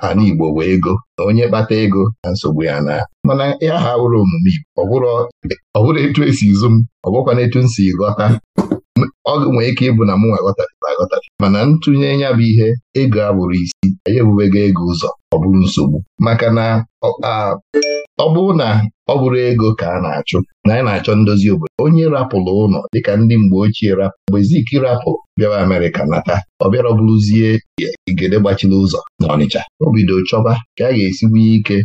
ana Igbo bụ ego na onye kpata ego na nsogbu ya na mana ya ha wụrụ omume Igbo ọ bụrụ etu esi izu m ọ etu m si ghọta ọ nwee ike ịbụ na mụ nwa aghọtara mana ntụnye ya bụ ihe ego abụrụ isi anyị ebubego ego ụzọ ọ bụrụ nsogbu maka na ọ bụrụ na ọ bụrụ ego ka a na-achụ na anyị na-achọ ndozi obodo onye rapụrụ ụlọ dịka ndị mgbe ochie rapụ mgbe Zik rapụ bịawa Amerịka nata ọ bịara ọ bụrụzie igede gbachiri ụzọ na Ọnịcha o bido chọba ka a ga-esi nwee ike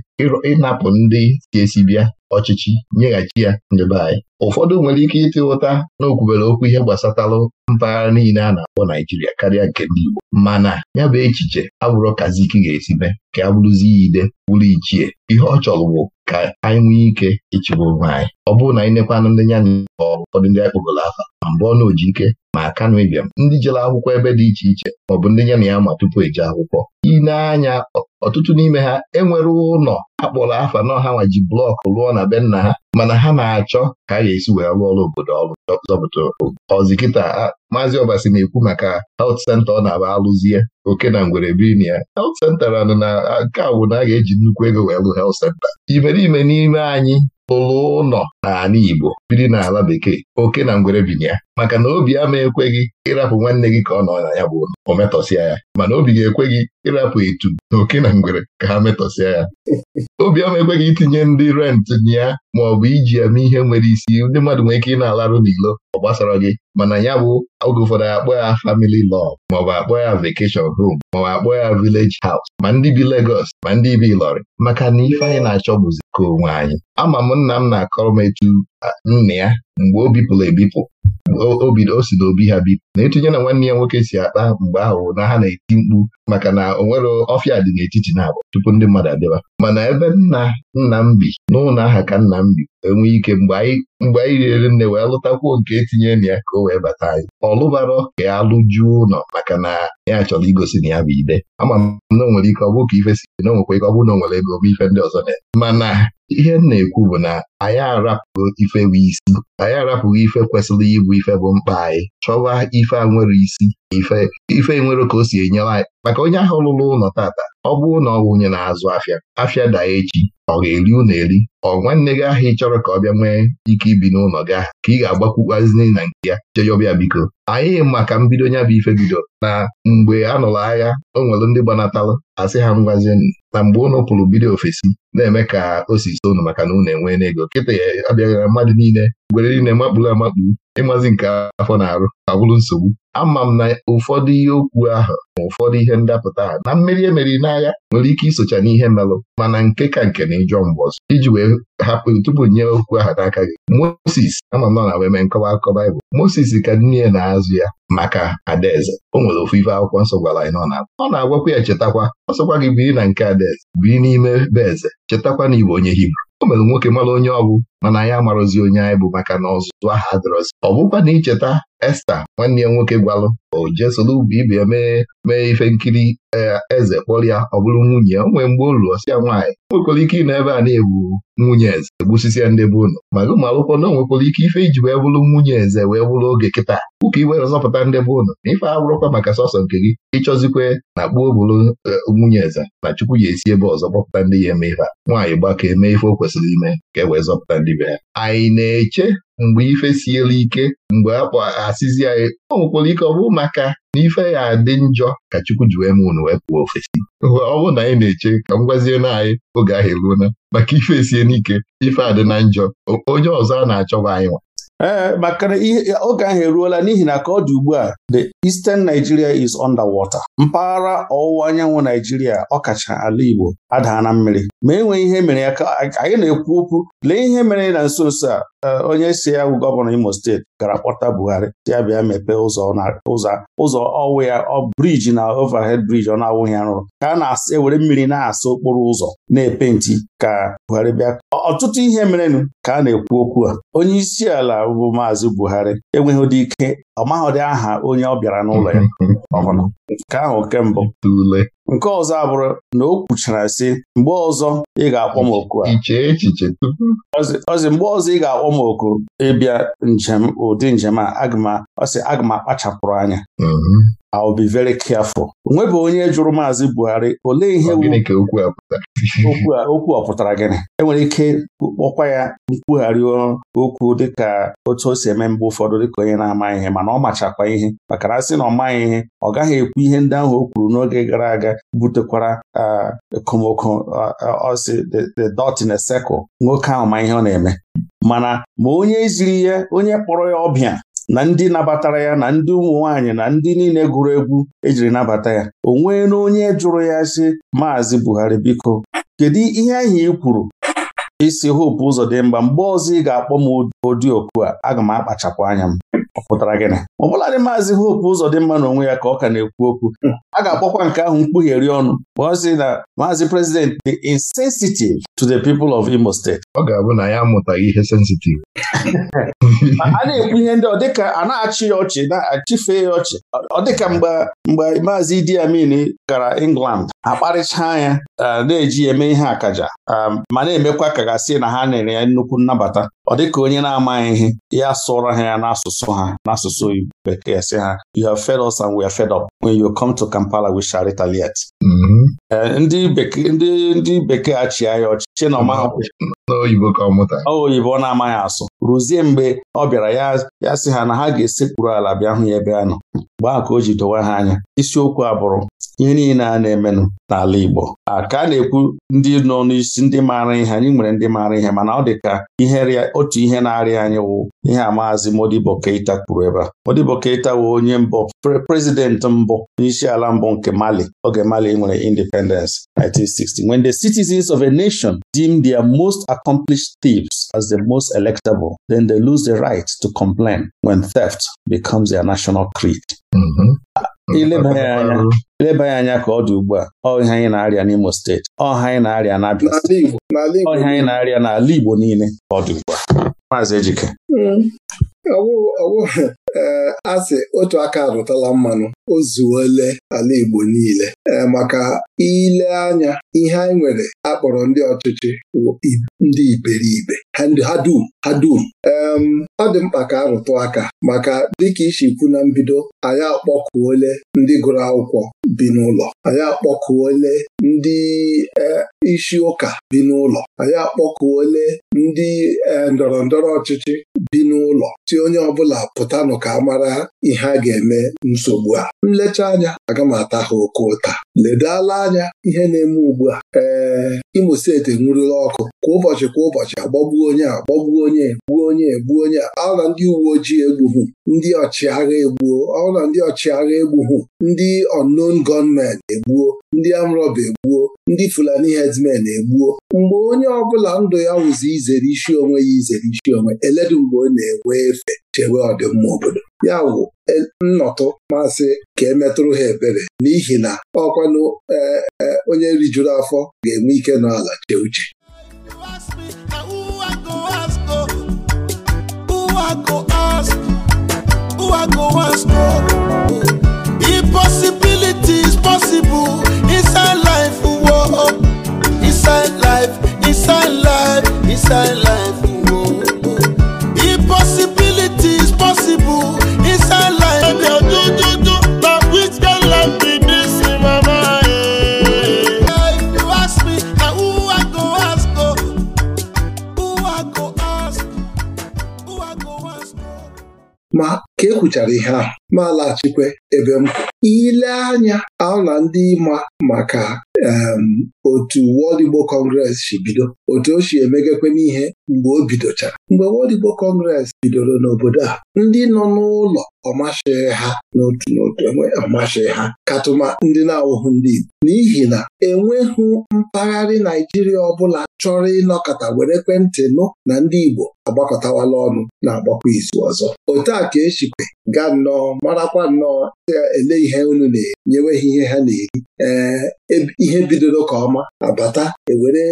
ịnapụ ndị si esi bịa ọchịchị nyeghachi ya nyebe anyị ụfọdụ nwere ike ịtị ụta na okwubere okwu ihe gbasatalụ mpaghara niile a na-akpọ Naijiria karịa nke ndị Igbo mana ya bụ echiche abụrụ ike ga mee ka abụrụzi ya ide bụrụ ichie ihe ọ chọrọ bụ ka anyị nwee ike ịchịgwa onwe anyị ọ bụrụ na anyị nekwana ndị ya ma ụfọdụ ndị akpọgoro afa ma mbụ ọnụ oji ike ma akanụ ịbịam ndị jere akwụkwọ ebe dị iche iche maọbụ ndị ya na ya ma tupu eje akwụkwọ ị ọtụtụ n'ime ha enwere ụlọ akpọrọ afa na ha nwa ji blọkụ rụọ na be nna ha mana ha na-achọ ka a ga-esi wee rụọ ọrụ obodo ọrụ zọpụta ọzi kịta maazị ọbasi na-ekwu maka health senta ọ na-aba alụzie oke na ngwere biri na ya health center na nke na a ga-eji nnukwu ego wee lụ health center. Imerime n'ime anyị ụlọ ụlọ n'ala Igbo biri n'ala bekee oke na ngwere binye maka na obi ama ekweghị ịrapụ nwanne gị ka ọ nọ na ya bụ ụlọ o metọsịa ya mana obi ga gị ịrapụ etu na oke na ngwere ka ha metọsịa ya obi ama ekweghị itinye ndị rent ya ma ọ bụ iji ama mee ihe nwere isi ndị mmadụ nwere ike ị na-alarụ n'ilo ọ gbasara gị mana ya bụ oge ụfọdụ akpọ ya family law maọbụ akpọ ya vacation home maọbụ akpọ ya village house ma ndị bi legos ma ndị bi Ilọrị maka na ife anyị na-achọ bụzi ka onwe anyị ama m ụmụnna m na-akọrọ m etu nna ya mgbe o bipụrụ ebipụ o si n'obi ha bipụ na etinye na nwanne ya nwoke si akpa mgbe ahụ na ha na-eti mkpu maka na o nwere ọfịa dị n'etiti na abụọ tupu ndị mmadụ adịba mana ebe nna nna m bi n'ụlọ aha ka nna m bi enwe ike mgbe anyị rere nne wee lụtakwuo nke etinye na ya ka o wee bata anyị ọlụbara ka ya lụjuo ụlọ maka na ya chọrọ igosi na ya bụ ide ama m na o nwere ike ọ bụrụ ka ife si na o ike ọ bụrụ na o nwere ego m ife ndị ọzọ na mana ihe m na-ekwu bụ na anyị arapụo ife ife bụ isi anyị arapụghị ife kwesịrị ịbụ ife bụ mkpa anyị chọwa ife a nwere isi na ife nwere ka o si enye anyị maka onye ahụ lụrụ ụlọ tata ọ bụrụ na ọ wụnye na-azụ afịa afịa daa echi ọ ga-eri unu eri ọ nwanne gị ahụ ị chọrọ ka ọ bịa nwee ike ibi n'ụlọ gị ahụ ka ị ga-agbakwukwazini na nke ya ọbịa biko anyị maka mbido nya bụ ife bido na mgbe a nụrụ agha o nwere ndị gbanatalụ asị ha ngwazienụ na mgbe unu pụrụ bido ofesi na-eme ka o si so unu maka na unu enwee n'ego kịta ya abịaghị mmadụ niile gwere niile makpuru amakpu ịmazi nke afọ na-arụ abụrụ nsogbu ama m na ụfọdụ ihe okwu ahụ ma ụfọdụ ihe ndapụta ahụ na mmeri emeri n'agha nwere ike isocha n'ihe melụ mana nke ka nke na ịjọ mgbe ọzọ iji wee hapụ tupu nye okwu ahụ n'aka gị Moses ama m nọ na weme nkọwa akụkọ Baịbụl Moses ka nne na-azụ ya maka adaeze o nwere ofu ife akwụkwọ nsọ gwara anyị na ọ na-agwakwa ya chetakwa ọ sọkwa gị biri na nke adaeze biri n'ime be eze chetakwa na Igbo onye Hibru mere nwoke mara onye ọ bụ mana anyị amarozi onye anyị bụ maka na ọzụzụ aha adịrọzi ọ bụkwa na icheta Esta nwanne ya nwoke gwalụ o jee soro ibe ya mee mee ife nkiri E, eze kpọrọ ọ bụrụ nwunye ya nwee mgbe o lụọ ya nwaanyị nwekwara ike ị na ebe a na-egbu nwunye eze egbusisi ya ndị be ụnụ maka ụmụ akwụkwọ na onwekwara ike ife iji wee bụrụ nwunye eze wee bụrụ oge kịta ụka iwe zọpụta ndị be ụnụ na ife abụrụkwa maka sọsọ nke gị ịchọzikwe na gbuo bụrụ e, nwunye eze na chukwu ya esi ebe ọzọ kpọpụta ndị ya eme ife nwaanyị gbakọ eme ife o kwesịrị ime ka e wee zọpụta ndị be ya anyị na-eche mgbe ife siela ike mgbe akpọ asịzi anyị o nwekwara ike ọ bụrụ maka na ife ya adị njọ ka Chukwu ji wee m unu wee pụọ ofesi ọ bụrụ na anyị na-eche ka m gwazie na anyị oge ahụ eruona maka ife esie n'ike ife adị na njọ onye ọzọ a na-achọba anyị nwa ee maka oge ahụ eruola n'ihi na ka ọ dị ugbu a the Eastern Nigeria is underwater. mpaghara ọwụwa anyanwụ Naijiria ọkacha ala Igbo adaa na mmiri ma enweghị ihe mere ya ka anyị na-ekwu okwu lee ihe mere na nso nso a Eh, onye si ya bụ gọvanọ Imo steeti gara kpọta Buhari ya bịa mepee ụzọ ụzọ ọwụ ya ọ briji na ovahed briji ọ na-awụghị ya rụrụ ka a na-ewere mmiri na-asa okporo ụzọ na-epenti ka Buhari bịa ọtụtụ ihe merenụ ka a na-ekwu okwu a onye isi ala bụ Maazị Buhari enweghị ụdị ike ọ maghọdị aha onye ọ bịara n'ụlọ ya nke ahụ nke mbụ nke ọzọ abụrụ na o kwuchara sị mgbe ọzọ ị ga-akpọ m oku a ọzi mgbe ọzọ ị ga-akpọ m oku ịbịa njem ụdị njem a ọsị aga m akpachapụrụ anya mhm. I be very careful. Onwebe onye jụrụ Maazị Buhari olee ihe okwu a pụtara gịnị enwere ike kpọkwa ya nkwugharị okwu dịka otu o si eme mgbe ụfọdụ dịka onye na-ama ihe mana ọ machakwa ihe maka na sị na ọ maghị ihe ọ gaghị ekwu ihe ndị ahụ o kwuru n'oge gara aga butekwara ekomoko ọsị the dot in a circle nwoke ahụ ma ihe ọ na-eme mana ma onye ziri ya onye kpọrọ ya ọbịa na ndị nabatara ya na ndị ụmụ nwanyị na ndị niile gụrụ egwu ejiri nabata ya o nwee onye jụrụ ya sị Maazị Buhari biko kedu ihe ahụ ị kwuru isi hopu ụzọ dị mgba mgbe ọzọ ị ga-akpọ m odiokwu a aga m akpachapụ anya m ọ pụtara gịnị ọ bụladị maazị Hope ụzọ dị mma n'onwe ya ka ọ ka na-ekwu okwu a ga-akpọkwa nke ahụ mkpughere ọnụ ọ sị na maazị Prezident dị insensitive to the people of Imo Steeti. Ọ ga-abụ na ya amụtaghị ihe sensitive. a na-ekwu ihe ndị ọ a na-achị ya ọchị na-achịfe ya ọchị ọ dịka mgbe mgbe maazị Idi Amin gara England akparịchaa anya na-eji eme ihe akaja ma na-emekwa ka gasị na ha nyere ya nnukwu nnabata ọ dịka onye na-amaghị ihe ya sụrọ ha ya n'asụsụ ha n'asụsụ bekee sị ha you have fed us and we are fed up when you come to Kampala we shall retaliate ndị bekee achịa ya ọchịchị na oyibo ọ na-amaghị asụ ruzie mgbe ọ bịara ya sị ha na ha ga-esekpuru ala bịa hụ ya ebe a nọ mgbe ahụ ka o ji dowe ha anya isiokwu abụrụ. bụrụ ihe niile a na-emenụ n'ala Igbo ka a na-ekwu ndị nọ n'isi ndị maara ihe anyị nwere ndị maara ihe mana ọ dị ka ihe otu ihe na-arịa anyị wụ ihe a maazị Modibo Keita kwuru ebe a Modibo Keita wụ onye mbụ prezident mbụ n'isi ala mbụ nke Mali oge Mali nwere independence 1960 when the citizens of a nation deem their most accomplished thieves as the most electable then they lose the right to complain when theft becomes their national creed mm-hmm. ileba ya anya ka ọ dị ugbu a ọ anyị na-arịa n'Imo steeti ọha anyị na-arịa anyị na-arịa n'ala Igbo niile ka ọ dị ugbu a maazị Ejike hmm. ee asị otu aka arụtala mmanụ o zuole ala Igbo niile ee maka ile anya ihe anyị nwere akpọrọ ndị ọchịchị ndị iberibe ha dum ha dum ọ dị mkpa ka arụtụ aka maka dịka isi kwu na mbido anyị akpọkuole ndị gụrụ akwụkwọ bi n'ụlọ anyị akpọkuole ndị e, isi ụka bi n'ụlọ anyị akpọkuole ndị e, ndọrọ ndọrọ ọchịchị bi n'ụlọ si onye ọbụla pụtanụ ka a mara ihe a ga-eme nsogbu a nlecha anya aga m ata ha oke ụta ledala anya ihe na-eme ugbu a ee Imo steeti enwurula ọkụ kwa ụbọchị kwa ụbọchị agbagbuo onye agbagbuo onye onye egbuo onye ọ na ndị uwe ojii egbughu ndị ọchịagha egbuo ọ na ndị ọchịagha egbughu ndị unknown gunmen egbuo ndị amrọba egbuo ndị fulani herdsmen egbuo mgbe onye ọbụla ndụ ya wụzi izere isi onwe ya izere isi onwe eledu mgbe ọ na-enwe efe chewe ọdịmma obodo ya wụ e, nnọtụ masị ka emetụrụ ha ebere n'ihi na ọkwanụ e, e, onye rijuru afọ ga-enwe ike n'ala chee uche go ask? Who I go ask? No. Oh, Impossibility is possible. nchara ihe ahụ malaghachikwe ebe m ile anya ahụ na ndị ịma maka otu World Igbo kọngres si bido otu o si emegekwe n'ihe mgbe o bidochara mgbe World Igbo kọngres bidoro n'obodo a ndị nọ n'ụlọ ọmashịghị ha n'otu n'otu enwe ọmashịghị ha katụma ndị na-awụhụ ndị Igbo n'ihi na enweghị mpaghara Naijiria ọbụla chọrọ ịnọkọta were ekwentị nụ na ndị Igbo agbakọtawala ọnụ na-agbakwa izu ọzọ otu a ka esikwe gaa nnọọ marakwa nnọọ ele ihe unu na enyeweghị ihe ha na-eri ee e, ihe bidoro ka ọma abata ewere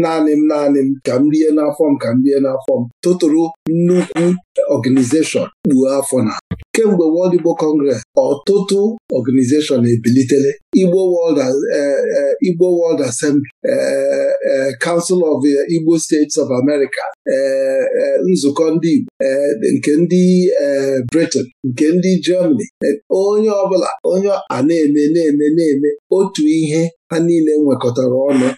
naanị m naanị m ka m rie n'afọ m ka m rie n'afọ m tụtụrụ nnukwu ọganizeshọn bụ afọ na kemgbe World Igbo Congress ọtụtụ ọganizeshọn ebilitele Igbo World e, e, Igbo World Assembly e, Council of Igbo States of America nzukọ ndị Igbo nke ndị Britain nke ndị Germany onye ọbụla onye a na-eme na-eme na-eme otu ihe ha niile nwekọtara ọnụ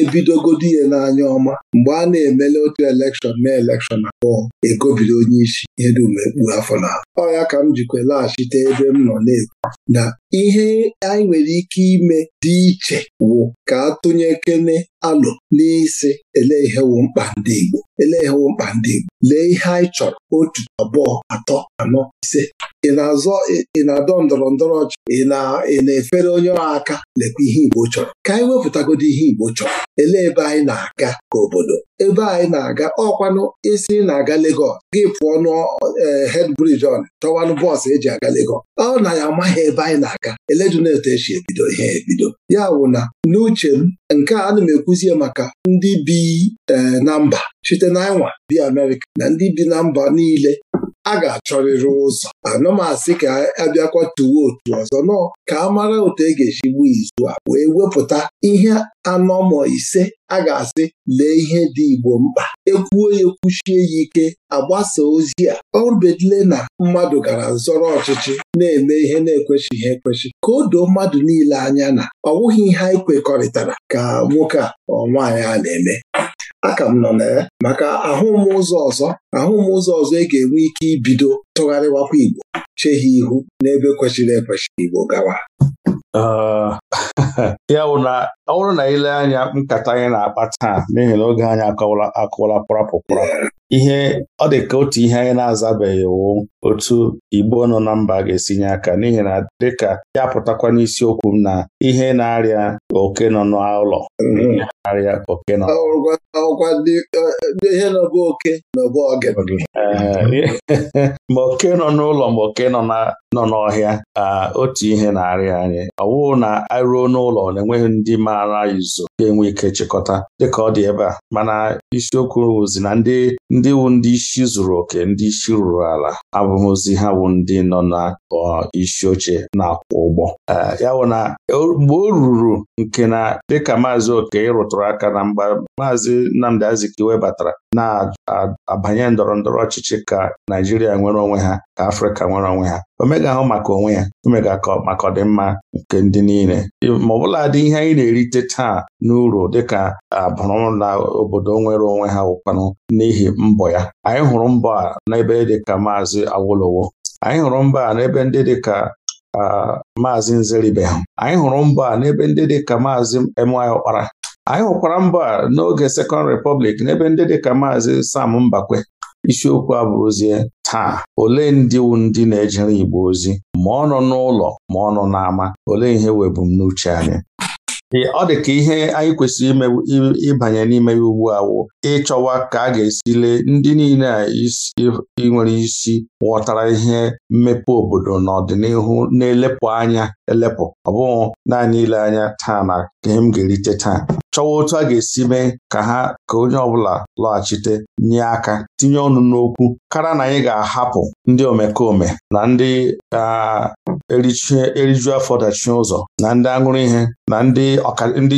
ebidogodi ihe n'anya ọma mgbe a na-emele otu elekshọn na elekshọn abụọ egobido onye isi ihe dum ekpu afọ na ọ ya ka m jikwa laghachite ebe m nọ na-ekwu na ihe anyị nwere ike ime dị iche wụ ka atụnyekene alụ n'isi ele ihewu mkpa ndị Igbo ele ihewu mkpa ndị Igbo lee ihe anyị chọrọ otu abụọ atọ anọ ise ị na-azọ ị na-adọ ndọrọ ndọrọ ọchị ị na-efere onye ọha aka lekwa ihe Igbo chọrọ ka anyị wepụtagodo ihe Igbo chọrọ elee ebe anyị na-aga ka obodo ebe anyị na-aga ọkwanụ isi na-aga Legọs gị pụọ n'hed e, brij on chọwanụ bọọsụ eji aga Legọs ọ na ya amaghị ebe anyị na-aga e si ebido ihe ebido ya wụ na n'uche m nke a ana m ekwuzie maka ndị bi e, na mba site n'anwa bi Amerịka na ndị bi na mba niile a ga-achọrịrị ụzọ anụmasị ka abịakwa tuwo otu ọzọ nọ ka a mara otu e ga-esi gbuo izu a wee wepụta ihe anọmọ ise a ga-asị lee ihe dị Igbo mkpa ekwuo ya ekwuchie ya ike agbasa ozi a obedile na mmadụ gara zọrọ ọchịchị na-eme ihe na ekwechighị ekwechi ka o doo mmadụ niile anya na ọ bụghị ihe anyị kwekọrịtara ka nwoke a ọ nwaanyị a na-eme aka m nọ na ya maka ahụm ụzọ ọzọ ahụ m ụzọ ọzọ ị e ga-enwe ike ibido tụgharịwakwa Igbo ha ihu n'ebe kwesịrị ekwesị Igbo gawa uh, ya bụ na ọ bụrụ na ile anya nkata anyị na-akpa taa n'ihi na oge anyị akọwala akọwala kpọrapụ ihe ọ dị ka otu ihe anyị na-azabeghị wụ otu Igbo nọ na mba ga-esi nye aka n'ihi na dịka ya pụtakwa n'isiokwu m na ihe na-arịa oke nọ n'ụlọ mm-hmm. na-arịa oke nọ ma oke nọ n'ụlọ ma oke nọ n'ọhịa otu ihe na-arịa anyị ọ na aruo n'ụlọ na-enweghị ndị maara izu ga-enwe ike chịkọta dịka ọ dị ebe a mana isiokwu ozi na ndị ndị wu ndị isi zuru oke ndị isi rụrụ ala abụmụzi ha wụ ndị nọ na isi oche na-akwụ ụgbọ Eh, ya wụ na mgbe o ruru nke na dịka maazị oke rụtụrụ aka na mgbe maazị Nnamdi Azikiwe batara na-abanye ndọrọ ndọrọ ọchịchị ka Naijiria nwere onwe ha ka Afrịka nwere onwe ha omega ahụ maka onwe ya omega maka ọdịmma nke ndị niile ma ọbụla dị ihe anyị na-erite taa n'uru dịka abụrụ na obodo nwere onwe ha wụkwanụ n'ihi mbọ ya anyị hụrụ mbọ a n'ebe dịka maazị Awolowo anyị hụrụ mbọ a n'ebe ndị dịka maazị Nzeribehu anyị hụrụ mbọ a n'ebe ndị dị ka maazị M.Y. Ọkpara anyị hụkwara mbọ a n'oge Second Repọblik n'ebe ndị dị ka maazị Sam Mbakwe isiokwu a bụ ozie taa olee ndị ndị na-ejere Igbo ozi ma ọ nọ n'ụlọ ma ọ nọ n'ama olee ihe webumnuche anyị ọ dị ka ihe anyị kwesịrị ịbanye n'ime ya ugbu a wụ ịchọwa ka a ga-esi lee ndị niile a nwere isi ghọtara ihe mmepe obodo n'ọdịnihu na-elepụ anya elepụ ọ naanị ile anya taa na ka m ga-erite taa chọwa otu a ga-esi mee ka ha ka onye ọbụla lọghachite nye aka tinye ọnụ n'okwu kara na anyị ga-ahapụ ndị omekome na ndị eriju afọ dachie ụzọ na ndị aṅụrụ ihe na ndị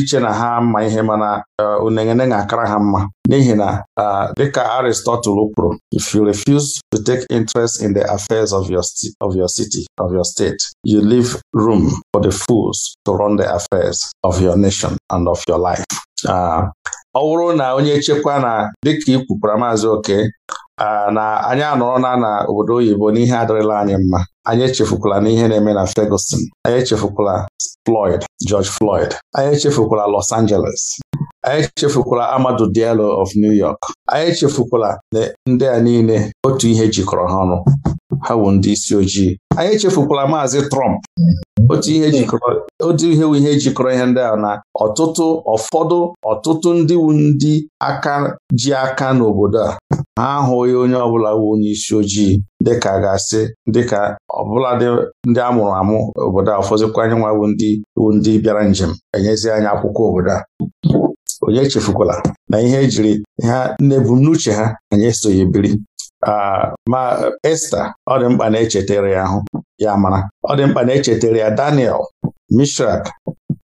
iche na ha mma ihe mana Eh, unengene na-akara ha mma n'ihi na eh, dịka Aristotle kwuru if you refuse to take interest in the affairs of your of your city of your state you leave room for the fools to run the affairs of your nation and of your life. Ah, ọ bụrụ na onye chekwa na dịka i kwupụra maazị oke ah, na anyị anọrọ na na obodo oyibo n'ihe adịrịla anyị mma anyị echefukwala n'ihe na-eme na Ferguson anyị echefukwala Floyd George Floyd anyị echefukwala Los Angeles anyị chefukwala Amadu Diallo of New York anyị chefukwala na ndị a niile otu ihe jikọrọ ha ọnụ ha bụ ndị isi ojii anyị chefukwala maazị Trump otu ihe jikọrọ ihe jikọrọ ihe ndị a na ọtụtụ ụfọdụ ọtụtụ ndị ndị aka ji aka n'obodo a ha ahụghị onye ọbụla bụ onye isi ojii dịka ga-asị dịka ọbụladị ndị a mụrụ amụ obodo a ụfọdụkwa anyị nwa bụ ndị bịara njem enyezi anyị akwụkwọ obodo a onye echefukwala na ihe ejiri ha n'ebumnuche ha anyị esoghi biri ma Esta ọ dị mkpa na-echetere ya ahụ ya mara ọ dị mkpa na-echetere ya Daniel Mishrak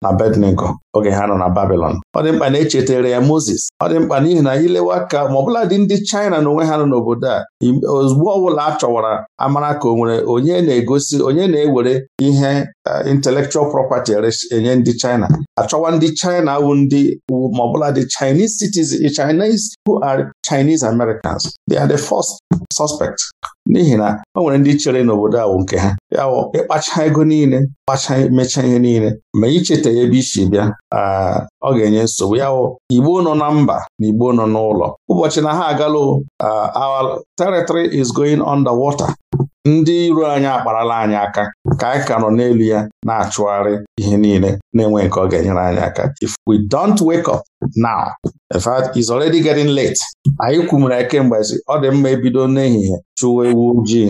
na Abednego oge ha nọ na Babilọn ọ dị mkpa na echetara ya Moses ọ dị mkpa n'ihi na ilewa ka ma ọbụla dị ndị China na onwe ha nọ n'obodo a ozugbo ọbụla a chọwara amara ka o nwere onye na-egosi onye na-ewere ihe Eh, intellectual property eh, enye ndị China achọwa ndị China wụ ndị ma bụla the Chinese citizens Chinese who are Chinese Americans they are the first suspect n'ihi na o nwere ndị chere n'obodo ahụ nke ha ya ịkpacha ego niile kpacha mechaa ihe niile ma icheta ya ebe isi bịa ah, ọ ga-enye nsogbu ya wụ Igbo nọ na mba na Igbo nọ n'ụlọ ụbọchị na ha agalụ ah, our territory is going water. ndị iro anyị akparala anyị aka ka anyị ka nọ n'elu ya na-achụgharị ihe niile na-enwe nke ọ ga-enyere anyị aka if we don't wake up now in fact it's already getting late anyị kwumere kemgbe si ọ dị mma ebido n'ehihie chụwa ewu ji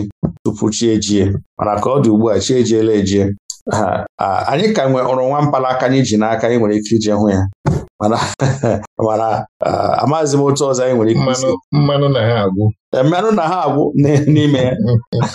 tupu chi ejie mana ka ọ dị ugbu a chi ejiela ejie anyị ka nwee ọrụ nwa mpalaka anyị ji n'aka anyị nwere ike ije hụ ya mana amaghịzi m otu ọzọ anyị nwere ike mmanụ na ha agwụ mmanụ na ha agwụ e, n'ime ya mm.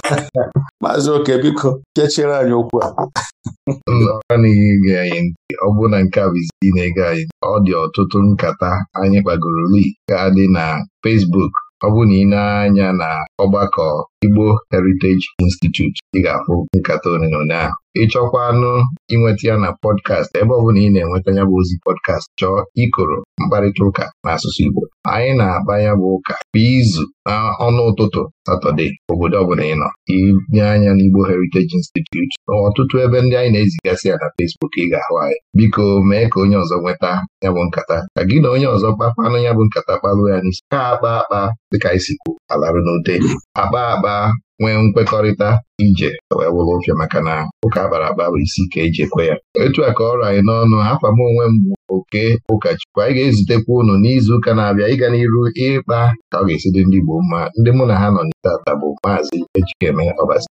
maazị oke biko kechiere anyị okwu a n'ihe anyị ọ bụrụ na nke a bụ na-ege anyị ọ dị ọtụtụ nkata anyị kpagoro li ga dị na fesbuk ọ bụrụ na ị na-anya na ọgbakọ Igbo Heritage Institute ị ga-akpụ nkata one na ahụ ịchọkwa anụ inweta ya na pọdkast ebe ọ bụla ị na-enweta ya bụ ozi pọdkast chọọ ikoro mkparịta ụka n'asụsụ Igbo anyị na-akpa ya bụ ụka kwa izu na ọnụ ụtụtụ Satọde obodo ọbụla ị nọ inye anya n'Igbo Heritage Institute ọtụtụ ebe ndị anyị na-ezigasị ya na Fesbuk ị ga-ahụ anyị biko mee ka onye ọzọ nweta ya bụ nkata ka gị na onye ọzọ kpakpanụ ya bụ nkata kpalụ ya n'isi ka akpa akpa dịka anyị sikwu alarụ n'ute akpa akpa akpa nwee nkwekọrịta ije wee wụrụ maka na ụka bara akpa bụ isi ka eji ekwe ya etu a ka ọ ọrụ anyị n'ọnụ afam onwe m bụ oke ụkọchukwu anyị ga-ezutekwa ụnụ n'izuụka na-abịa ịga n'iru ịkpa ka ọ ga-esi dị ndị Igbo mma ndị mụ na ha nọ n'itata bụ maazị Ejikeme Ọbasi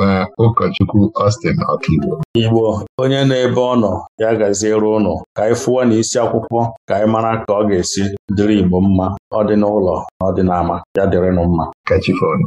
na ụkọchukwu Austin Ọkaigbo Igbo onye na-ebe ọ nọ ya gaziere ụnụ ka anyị fụọ na isi akwụkwọ ka anyị mara ka ọ ga-esi dịrị Igbo mma ọ dị na ọ ya dịrịnụ mma kachifonu